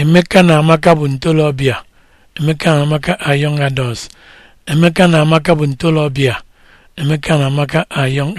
Emeka na Amaka bụ ntolobịa Emeka na Amaka are young adults Emeka na Amaka bụ ntolobịa Emeka na Amaka are young